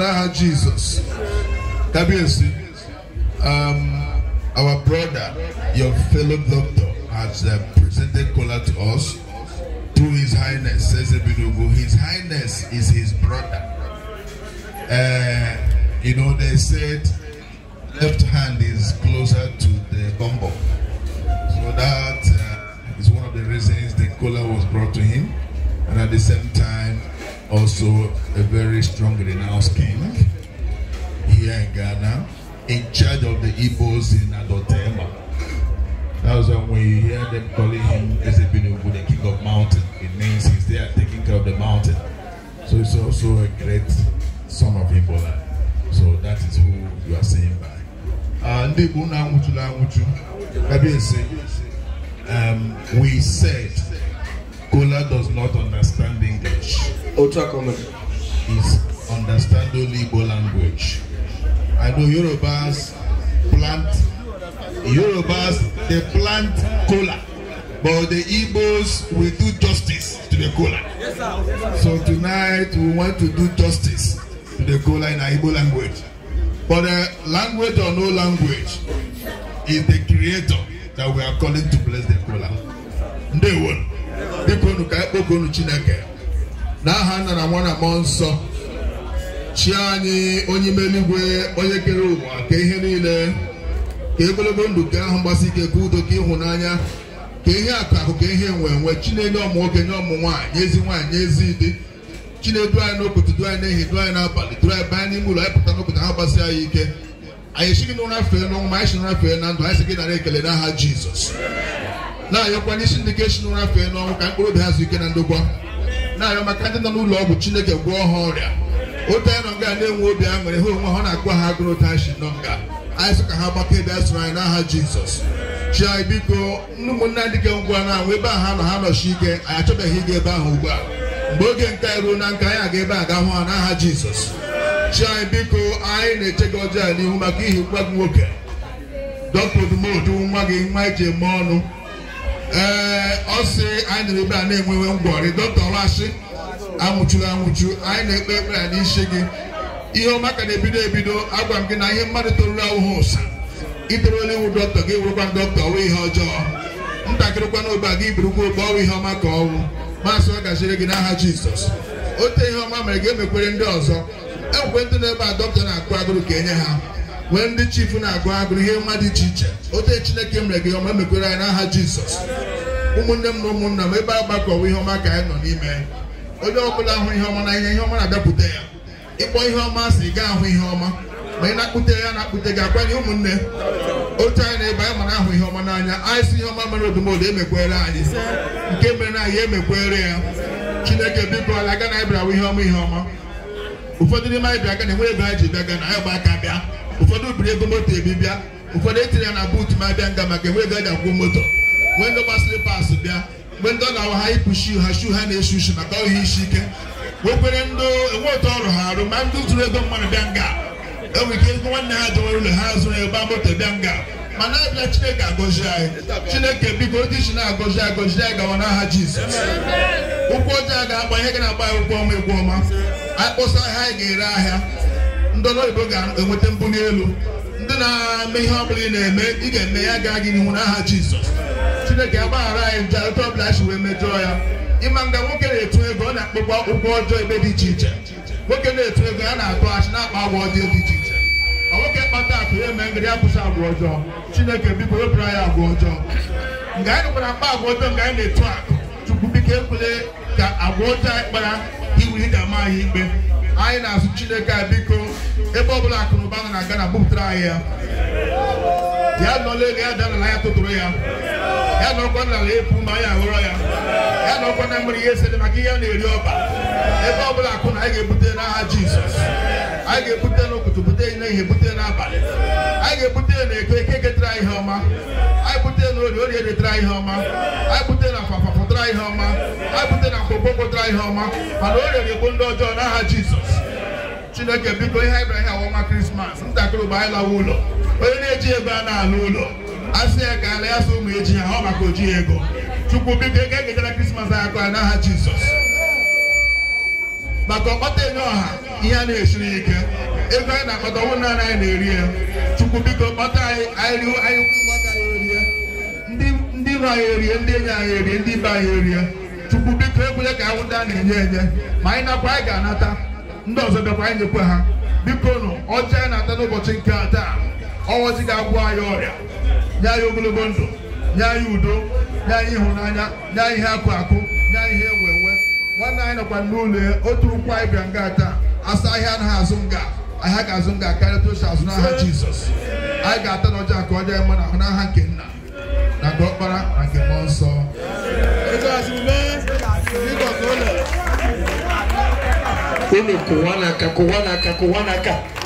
Now, Jesus, Kabiyesi, um, our brother, your fellow doctor, has uh, presented cola to us To His Highness, Sesebidogo. His Highness is his brother. Uh, you know, they said left hand is closer to the bumbo. So that uh, is one of the reasons the cola was brought to him. And at the same also a very strong renounced king here in Ghana, in charge of the Igbos in Adotema. That's when we hear them calling him Ezebinugu, the king of mountain. It means he's there taking care of the mountain. So he's also a great son of Ibola. So that is who you are saying by. Uh, ndị Igbo na-anwụtụla anwụtụ, ebe um, we said Kola does not understand English. Ultra common. Is understand only Igbo language. I know Yorubas plant Yorubas they plant kola. But the Igbos will do justice to the kola. Yes, sir. So tonight we want to do justice to the kola in our Igbo language. But uh, language or no language is the creator that we are calling to bless the kola. They won't. biko unu ka ekpoko unu chineke n'aha nna na nwa na mmụọ nsọ chi anyị onye ime onye kere ụwa ka ihe niile ka egologo ndụ ka ahụ mgbasi ike ka udo ka ịhụnanya ka ihe akụ akụ ka ihe nwee enwe chinenye ọmụ nwoke nye ọmụ nwaanyị ezi nwaanyị ezi dị chinedu anyị n'okwute du anyị n'ehi du anyị n'abalị du anyị baa n'ime ụlọ anyị pụta n'okwute ha gbasi anyị ike anyị esighị n'ụra fee n'ọnwụ ma anyị si n'ụra fee na ndụ anyị si gị nara ekele n'aha jizọs na-ayọkwa n'isi ndị ga-esi n'ụra fee n'ọnwụ ka mkpụrụ obi ha zuo ike na ndokwa na-ayọ maka ndị nọ n'ụlọ ọgwụ chineke gwọọ ha ọrịa ote nọ nga na-enwe obi aṅụrị ha onwe ha na-akpọ ha agụrụ tashi nọ nga anyị sị ka ha gbakọ ebe a sụrụ anyị n'aha jizọs chi anyị biko ndị ndị ga ngwa na-anwụ ebe a ha nọ ha nọchi ike anyị achọbeghị ịga ebe ahụ ugbu a mgbe oge nke anyị ruo na nka anyị aga ebe a ga hụ ha n'aha jizọs chi anyị biko anyị na-eche gị ọjọọ n'ihu maka ihi nwa gị nwoke dọkta odumodu nwa gị nwa iji eme ọnụ ee ọ anyị nọrọ ebe a na-enwewe ngwọrị dọkịta ọlashị anwụchuru anwụchu anyị na-ekpe ekpere a n'isi gị ihe ọma ka na-ebido ebido agwa m gị na ihe mmadụ toruru awụghị ụsa iterela iwu dọkịta gị wụrụkwa dọkịta ọwụ ihe ọjọọ ntakịrịkwa n'ogbe a gị birukwa ogbe ọwụ ihe ọma ka ọwụ maasị ọ gajire gị n'aha jizọs ote ihe ọma mere gị emekwere ndị ọzọ e ndị na ebe a dọkịta na-akụ agụrụ ka enye ha nwee ndị chifu na-agụ agụrụ ihe mmadụ iche iche ote chineke mere gị ọma mekwere anyị n'aha jizọs ụmụnne m na ụmụnna m ebe a gbakọwa ihe ọma ka anyị nọ n'ime onye ọbụla ahụ ihe ọma na ihe ihe ọma na-abịapụta ya ịkpọ ihe ọma si gaa ahụ ihe ọma ma ị na-akpụte ya na-akpụte gị akwanye ụmụnne otu anyị na-ebe anyị mana ahụ ihe ọma n'anya anyị si ihe ọma mere odumodo emekwere anyị nke mere na anyị emekwere ya chineke biko ala aga na anyị ihe ọma ihe ọma ụfọdụ n'ime anyị bịa aga na enweghị ebe anyị ji bịa na anyị gba aka bịa ụfọdụ biri ego moto ebi bịa ụfọdụ etinye ya na buutu ma bịa nga maka enwe ego a akwụ moto nwee ndị gba slipas bịa mgbe ndị ọ ga-awa ha ịpụ shiu ha shiu ha na-eshi ushi maka ohi isi ike nwekwere ndị enwe otu ọrụ ha arụ ma ndị zụrụ ego mmadụ bịa nga enwere ike ego nwanne ha jewere ụlọ ha zụrụ ịgba moto bịa nga mana abịa chineke agọzi anyị chineke biko dị iji na-agọzi agọzi anyị gawa n'aha jizọs ụkwụ ojii a ga-agba ihe gị na-agba ya ụkwụ ọma egwu ọma akpụsa ha anyị ga-ere ahịa ndị ọla oyibo ga-enweta mbuli elu ndị na-eme ihe ọbụla ị na-eme ị ga-eme ya gaa gị n'ihu n'aha Jizọs Chineke agbaghara anyị njarịta ọbụla anyị wee mejọọ ya ịma nga nwoke na-etu ego ọ na-akpọkwa ụgwọ ọjọọ ebe dị iche iche nwoke na-etu ego ya na-atụ achị na-akpa agwa ọjọọ dị iche iche ọ nwoke kpata akụ ya eme ngịrị akwụsị agwa ọjọọ Chineke biko wepụrụ anyị agwa ọjọọ nga anyị nụkwara mkpa agwa ọjọọ nga anyị na-etu akụ chukwu biko ekwele ka agwa ọjọọ anyị kpara iwuli ga ama anyị ikpe anyị na-asụ Chineke a biko ebe ọbụla akụnụba na ụba nọ na Ghana anyị ya ya nọla ego ya dara na ya tụtụrụ ya ya nọkwa n'ala epu ma anyị ahụrọ ya ya nọkwa na mmiri ihe esere maka ihe a na-eri ọba ebe ọ bụla akụ na anyị ga-ebute n'aha Jizọs anyị ga-ebute n'ụtụtụ bute n'ehihie bute n'abalị anyị ga-ebute na-eke eke ketara ihe ọma anyị bute na ori ori edetara ihe ọma anyị bute na fafa pụtara ihe ọma anyị bute na mkpokpo pụtara ihe ọma mana o rere egbo ndị ọjọọ n'aha Jizọs chineke biko ihe anyị bịara ọnwa krismas ntakịrị ụgbọ anyị lawa ụlọ onye na-eji ego a na-ala ụlọ a sị ya ka ala ya sị ụmụ eji ya ha ọ maka oji ego chukwu biko ego a ga-ejere krismas anyị na n'aha jizọs maka ọkpọta enye ọha ihe a na-esiri ike ego anyị na-akpata ọnwụ naanị anyị na-eri ya chukwu biko kpọta anyị anyị riwo anyị erie ndị iro anyị erie ndị enyi anyị erie ndị ibe anyị erie chukwu biko ekwele ka anwụnta a na-enye enye ma anyị nakwa anyị ga-anata ndị ọzọ bịakwa anyị nyekwe ha biko nụ ọjị anyị na-ata n'ụbọchị nke a taa ọwọji ga-agwụ anyị ọrịa nye anyị ogologo ndụ nye anyị udo nye anyị ịhụnanya nye anyị ihe akụ akụ nye anyị ihe ewe ewe nwanne anyị nọkwa n'ụlọ ya otu ụkwụ anyị bịa nga taa asa ahịa anaghị azụ nga ahịa ga-azụ nga karịa tochi azụ n'aha jizọs anyị ga-ata n'ọjọ ka ọ dị mma n'aha nke nna na nke ọkpara na nke mmụọ nsọ oyo kowanaka kowanaka kowanaka